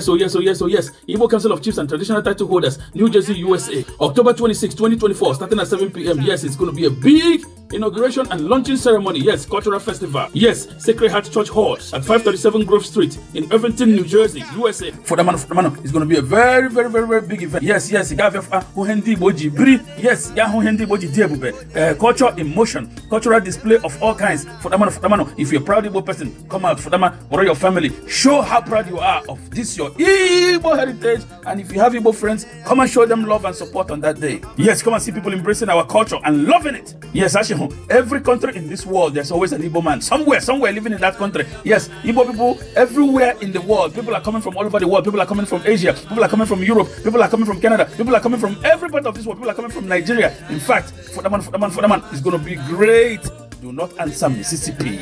So yes, so oh yes, oh so oh yes. Igbo Council of Chiefs and Traditional Title Holders, New Jersey, USA, October 26, 2024, starting at 7 p.m. Yes, it's going to be a big inauguration and launching ceremony. Yes, cultural festival. Yes, Sacred Heart Church Hall at 537 Grove Street in Irvington, New Jersey, USA. For the man, for the man, it's going to be a very, very, very, very big event. Yes, yes, Huhendi Boji Bri. Yes, Yahuhendi Boji Diabube. Uh, culture in motion, cultural display of all kinds. For the man, for the man, if you're a proud Igbo person, come out for the man or your family. Show how proud you are of this your Igbo heritage. And if you have Igbo friends, come and show them love and support on that day. Yes, come and see people embracing our culture and loving it. Yes, actually. every country in this world, there's always an Igbo man somewhere, somewhere living in that country. Yes, Igbo people everywhere in the world. People are coming from all over the world. People are coming from Asia. People are coming from Europe. People are coming from Canada. People are coming from every part of this world. People are coming from Nigeria. In fact, for that man, for that man, for that man, it's going to be great. Do not answer Mississippi.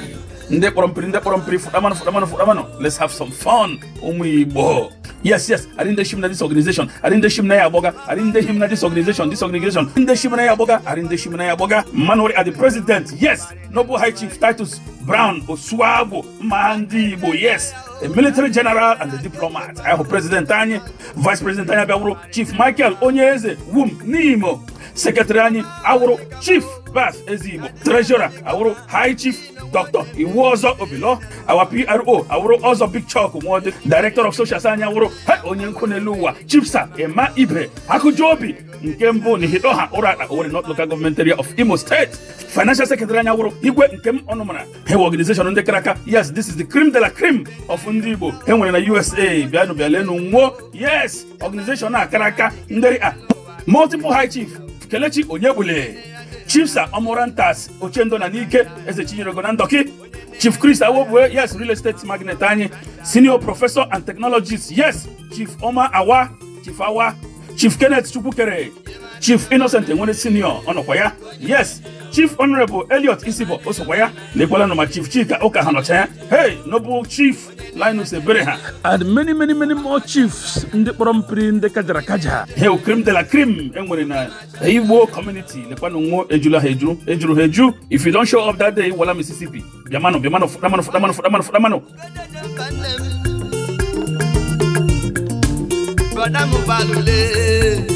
Let's have some fun. Umu Igbo. Yes, yes. I didn't shim na this organization. I didn't shim na yaboga. I didn't shim na this organization. This organization. I didn't shim na yaboga. I didn't shim na yaboga. Manori are the president. Yes. Noble High Chief Titus Brown Oswabo Mandibo. Yes. A military general and a diplomat. I have President Tanya, Vice President Tanya Chief Michael Onyeze Wum Nimo sekretariani awụrụ chief bas ezigbo Treasurer, awụrụ high chief dr iwu ọzọ obilo awa pro awụrụ ọzọ big chok nwọdị director of socials anyị awụrụ ha onye nkụ n'elu ụwa chief sa ema ibre akụju obi nke mbụ n'ihido ha ụra akpa owere not local government area of imo state financial secretary anya wụrụ igwe nke m ọnụmara hewe organization ndị kara aka yes this is the cream de la cream of ndị igbo e nwere na usa bịanụ bịalenu nwuo yes organization a kara aka nderi a multiple high chief kelechi onyegbule chifsa omorantas ochendo na n'ike eze chinyerego na ndoki chief chris awobue yes real estate magnet anyị senior professor and technologist yes chief oma awa chief awa chief kenneth chukwukere chief innocent enwere senior ọnọkwa ya yes chief honorable eliot isibo osokwa ya na ekwelanụ ma chief chika ụka ha nọcha ya hey noble chief Linus Ebereha and many many many more chiefs ndị kpọrọ mpiri ndị kajara kaja hel krim de la krim e nwere na Igbo community lekwanụ nwụọ ejula ha ejuru ha if you don't show up that day wala Mississippi bịamanụ bịamanụ fụdamanụ fụdamanụ fụdamanụ fụdamanụ Bọ̀dá mo balùwẹ̀.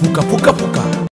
Puka puka puka.